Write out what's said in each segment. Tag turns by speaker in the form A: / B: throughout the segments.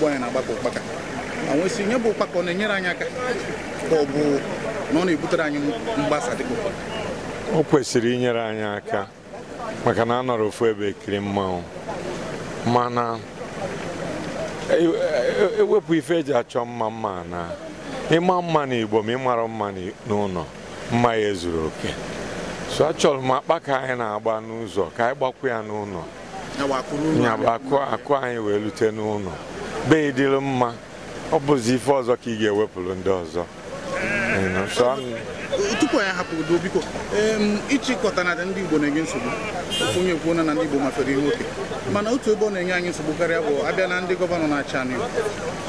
A: ugbo anyị na-agbakọ ụkpaka ma nwee sị nye bụ ụkpaka ọ na-enyere anyị aka ka ọ bụ na ọ na-ebutere anyị mgbasa dịka ụkpaka
B: o kwesịrị inyere anyị aka maka na a nọrọ ofu ebe ekiri mmanwụ mana ewepụ e, e, e ife eji achọ mma mma na ịma mma n'Igbo ma ịmara mma n'ụlọ mma ya ezuru oke so achọrọ m akpa ka anyị na-agba n'ụzọ ka anyị gbakwa ya n'ụlọ nyabụ akụ anyị wee lute n'ụlọ be dịrị mma ọ bụzi ife ọzọ ka ị ga-ewepụrụ ndị ọzọ
A: tupu anyị hapụ udo ịchịkọta na ndị Igbo na-enye nsogbu ofu onye kwuo na ndị Igbo mafere ihe oke mana otu ebe ọ na-enye anyị nsogbu karịa bụ abịa na ndị gọvanọ na achị anụ ya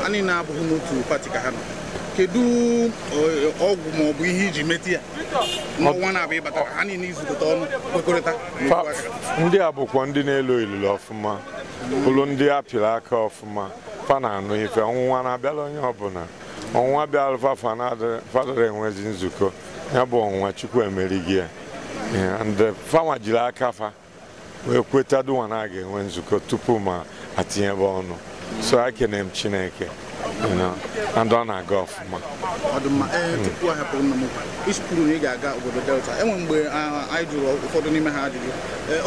A: anyị na niile abụghị n'otu pati ka ha nọ kedu ọgwụ ma ọ bụ ihe iji meti ya n'ọnwa na-abịa ịbatara ha niile izukọta ọnụ kwekọrịta
B: ndị a bụkwa ndị na-elo ilulu ọfụma bụrụ ndị apịrị aka ọfụma fa e eh, e na ife ọnwụnwa na-abịala onye ọbụla ọnwụnwa bịara fafa fadara enwezi nzukọ ya bụ ọnwụnwa chukwu emerighị ya ndị jiri aka fa wee kweta na eh, mm. a ga-enwe nzukọ tupu ma atinyebe ọnụ so ekene m chineke ndị ọ na-aga ọfụma na
A: ị ga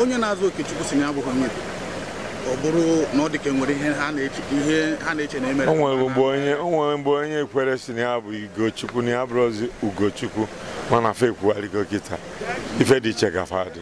A: onye na-azụ okechukwu si na abụghị onye ọ bụrụ na ọ dịka e nwere ihe ha na-eche na emere o
B: nwere mgbe onye ekwere si na ya bụ Ugochukwu na ya bụrụzi Ugochukwu mana fe ekwugharịgo kịta ife dị iche gafe adị